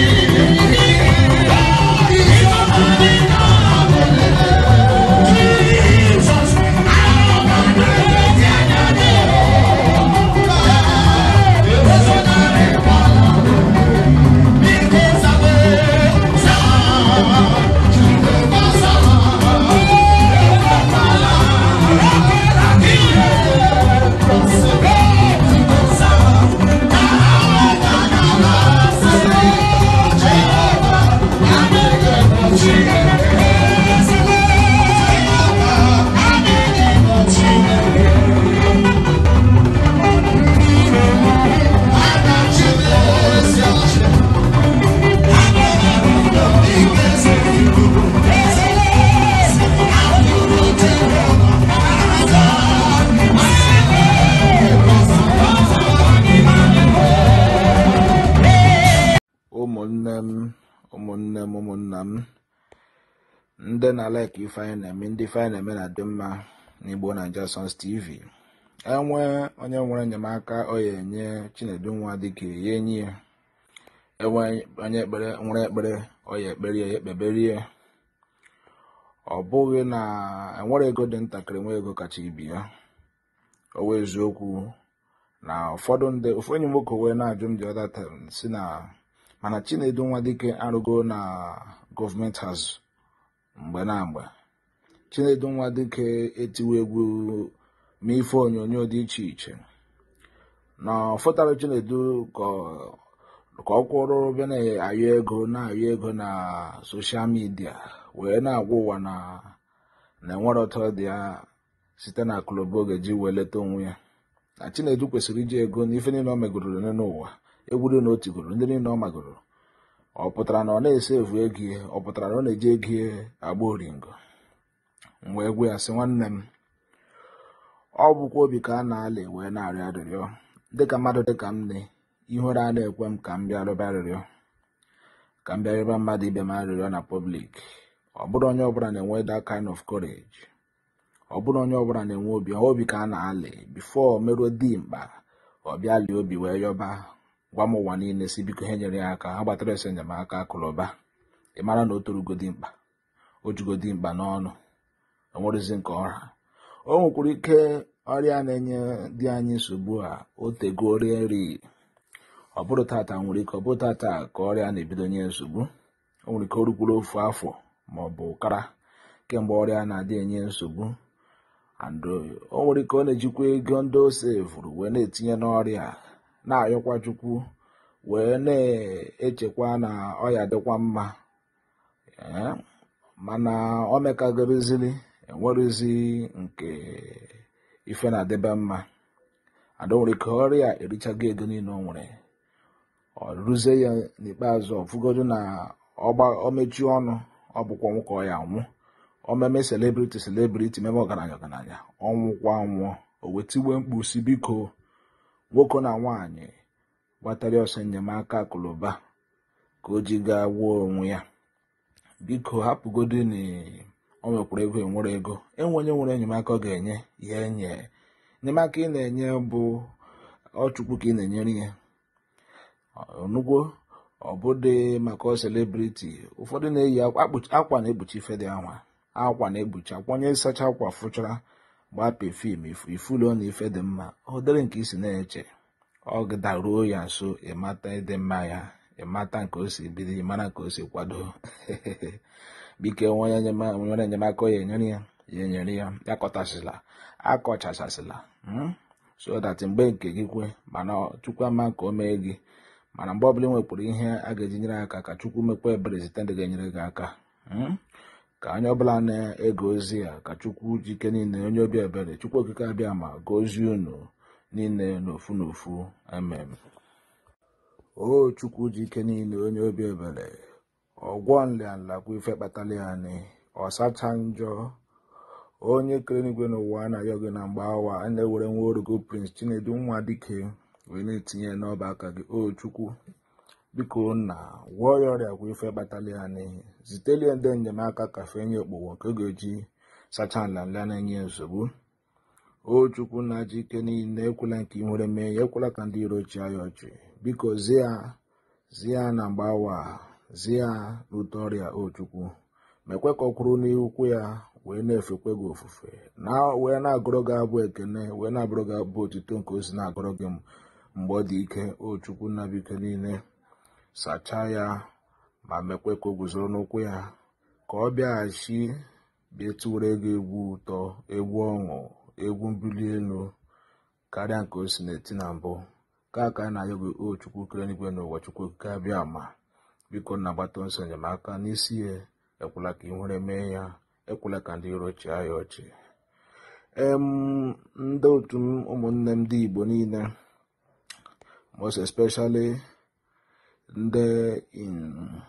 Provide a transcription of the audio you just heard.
Thank you. ụmụnne m ụmụnna m ndị na like ife na-eme ndị ife na-eme na-adị mma na igbo naija sons tv enwe onye nwere enyemaka ọ ya enye chinedu nwa dịka ya enyi ya enwe onye ekpere nwere ekpere ọ ya ekpere ya ekpeberie ọ bụghị na enwere ego dị ntakịrị nwe ego kacha ibi ya owe eziokwu na ụfọdụ ndị ofu nwoke na-ajụ m dị ọdata si na mana Chinedu nwa dike arụgo na gọọmenti hazụ mgbe na mgbe Chinedu nwa dike etiwe egwu ma onyonyo dị iche iche na ọfụtara Chinedu ka ọ kwụrụ be na-ayọ ego na-ayọ ego na soshal midia wee na-agwa ụwa na na-enwere ọtọ dị ya site na akụlụba ga-eji wee leta onwe ya na Chinedu kwesịrị iji ego na ife niile o megoro n'ụwa egwuru na o tigoro ndị niile ọ magoro ọ pụtara na ọ na-ese evu ego ihe ọ pụtara na ọ na-eji ego ihe agba oringo wee gwe ya sị nwanne m ọ bụkwa obi ka a na-alị wee na-arịọ arịrịọ dịka mmadụ dịka m nne ihere a na-ekwe m ka m bịa rịọba arịrịọ ka m bịa rịọba mmadụ ibe m arịrịọ na pọblik ọ bụrụ onye ọbụla na-enwe that kind of courage ọ bụrụ onye ọbụla na-enwe obi obi ka a na-alị bifo meruo dimkpa ọ bịa lie obi wee yọba gwa m ụwa niile si biko ha nyere ya aka ha gbatara esi enyemaka akụrụba ị mara na o torugodi mkpa o jugodi mkpa n'ọnụ enwerezi nke ọha o nwekwara ike ọrịa na-enye dị anyị nsogbu a otego orie nri ọ bụrụ tata nwere ike ọ bụrụ tata ka ọrịa na-ebido nye nsogbu o nwere ike o rukwuru ofu afọ ma ọ bụ ụkara kemgbe ọrịa na-adị enye nsogbu and o nwere ike ọ na-ejikwa ego ndị o vụrụ wee na-etinye n'ọrịa na-ayọkwa chukwu wee na-echekwa na ọya dịkwa mma mana o mekagorozili enwerụzi nke ife na-adịbe mma adọwere ka ọrịa erichago ego niile o nwere ọ rụzie ya n'ikpeazụ ọfụgodo na ọmechi ọnụ ọ bụkwa nwoke ọ ya nwụ omeme selebriti selebriti meme ọgaranya ọgaranya ọnwụkwa nwụọ o wetiwe biko nwoke na nwanyị gbatara ọsọ enyemaka akụlụba ka o ji gaa gwuo onwe ya biko hapụgodi na o nwekwara ego enwere ego enwenye nwere enyemaka ọ ga-enye ya enye enyemaka ị na-enye bụ ọchukwu ka ị na-enyere ya onugwo ọbụdị maka selebriti ụfọdụ na-eyi akwa na-ekpuchi ife dị anwa akwa na-ekpuchi akwa onye sacha akwa fụchara gbapee fim ifulu na ife dị mma dịrị nke isi na-eche ọ ruo ya nso ịmata ịdị mma ya ịmata nke o si bido ịmara nke o si kwado bike nwere enyemaka ya enyere ya ya enyere ya akọtasịla akọchachasịla hmm? so that mgbe nke gị kwe mana chukwu ama ka o mee gị mana mgbe ọbụla ị nwepụrụ ihe a ga-eji nyere aka ka chukwu mekwa ebere site ndị ga-enyere gị aka hmm? ka anyị ọbụla na egozi ozi ya ka chukwu jike niile onye obi ebere chukwu okike abịa ma gozie unu niile n'ofu n'ofu amen o chukwu ike niile onye obi ebere ọgwọ nla kwa ife kpatala ya anyị ọsacha njọ onye kere n'igwe n'ụwa na oge na mgbe awa a na-ewere nwa orogo prince chinedu nwa dike wee na-etinye n'ọba aka gị o chukwu biko nna gwọọ ya ọrịa kwa ife kpatala ya n'ihi zitelie ndị enyemaka kafe nye okpowo nke ga-eji sachaa nlanla na-enye nsogbu o chukwu na ji ike niile ekwela nke ị nwere mee ya ekwela ka ndị iro chịa ya ọchị biko zia zia na mgbawa awa zia rute ọrịa o chukwu mekwe ka ọ kwụrụ n'ukwu ya wee na-efekwe gị ofufe na wee na-agụrụ gị abụ ekene wee na agụrụ gị abụ otuto nke ozi na-agụrụ gị mgbe ọ dị ike o chukwu na biko niile sachaa ya ma mekwe ka o guzoro n'ụkwụ ya ka ọ bịaghachi bịa tụwere ego egwu ụtọ egwu ọṅụ egwu mbuli elu karịa nke o si na-eti na mbụ ka ka a na-ayọ gị o chukwu kere n'igwe chukwu okike abịa ma biko na agbata nso enyemaka n'isi ya ekwela ka ịnwere mee ya ekwela ka ndị iro chịa ya ọchị ndị otu ụmụnne m ndị igbo niile most especially there in